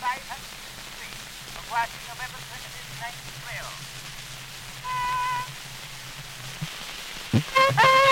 500 Street of Washington, November 25th, 1912.